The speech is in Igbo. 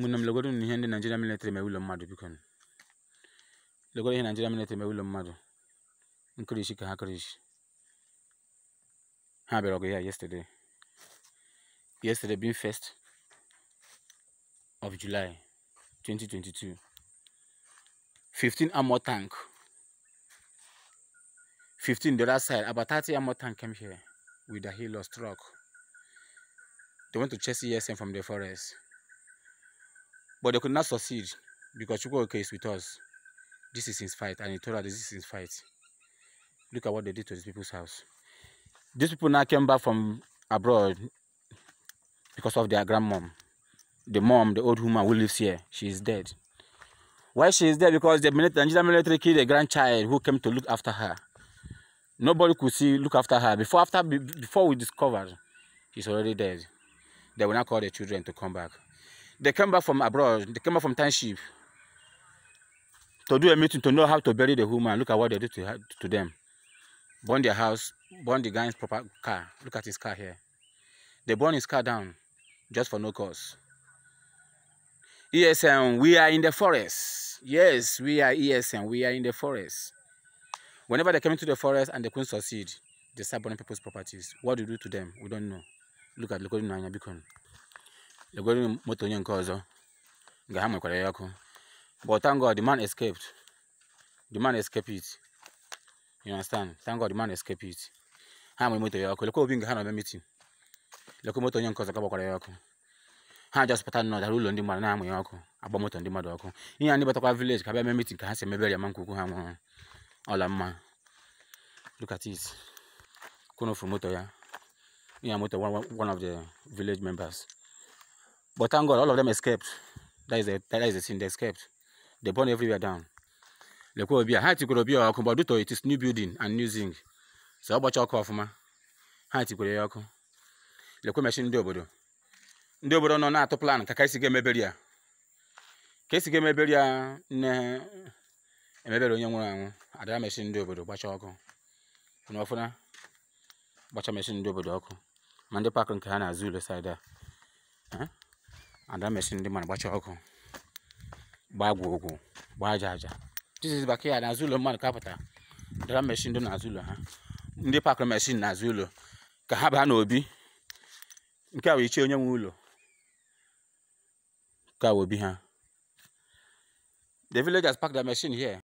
Mụnam legọrọ m ihe ndị Naịjiria militri mere ụlọ mmadụ biko nụ. Legọrọ ihe Naịjiria militri mere ụlọ mmadụ. Nkirishi ka ha kirishi. Ha bịara ọgụ ya yesterday. Yesterday being first of July 2022. 15 armor tank. 15 the other side. About 30 armor tank came here with the helos truck. They went to chase ESM from the forest. But they could not succeed because Chukwuka is with us. This is his fight, and he told us this is his fight. Look at what they did to these people's house. These people now came back from abroad because of their grandmom. The mom, the old woman who lives here, she is dead. Why she is dead? Because the Nigerian military killed a grandchild who came to look after her. Nobody could see look after her. Before after before we discovered, she's already dead. They will not call the children to come back. They came back from abroad. They came back from township to do a meeting to know how to bury the woman. Look at what they do to, to them. Burn their house, burn the guy's proper car. Look at his car here. They burn his car down just for no cause. ESN, we are in the forest. Yes, we are ESN, we are in the forest. Whenever they come into the forest and they couldn't succeed, they start burning people's properties. What do you do to them? We don't know. Look at Lokodun Nanya Bikon. legwere moto onye nke ọzọ nga ha nwekwara ya ọkụ but thank God the man escaped it you understand thank God the man escaped it ha nwere moto ya ọkụ lekwa obi nga ha na-eme meeting lekwa moto onye nke ọzọ ka gbakwara ya ọkụ ha jọspụta nọ dara ụlọ ndị mmadụ na-amụ ya ọkụ agba moto ndị mmadụ ọkụ ihe a ndị batakwa vileji ka bịa mee meeting ka ha si emebere ya ma nkwukwu ha nwụrụ ọla mma moto ya ihe moto one of the village members But thank God, all of them escaped. That is the, that is the sin, they escaped. They burned everywhere down. Lekwobia, ha tikwere ya ọkụ, but due to it is new building and new zinc. So ọ gbacha ọkụ ọfụma, ha tikwere ya ọkụ. Lekwe mechi ndị obodo. Ndị obodo nọ na-atụ plan ka ka esi ga-emeberi ya. Ka esi ga na ya nne emebere onye nwụrụ anwụ, adara mechi ndị obodo gbacha ọkụ. Fụna ọfụna, gbacha mechi ndị obodo ọkụ. Ma ndị nke ha na-azụ ule saịda. and that machine ndị na ọkụ gbaa ogwu gbaa aja aja tiziz baka n'azụ ụlọ mmadụ kapụta dara mechin dị n'azụ ụlọ ha ndị pakụrụ mechin n'azụ ụlọ ka ha baa n'obi nke a wee ichie onye nwe ụlọ ka obi ha the villagers pack their machine here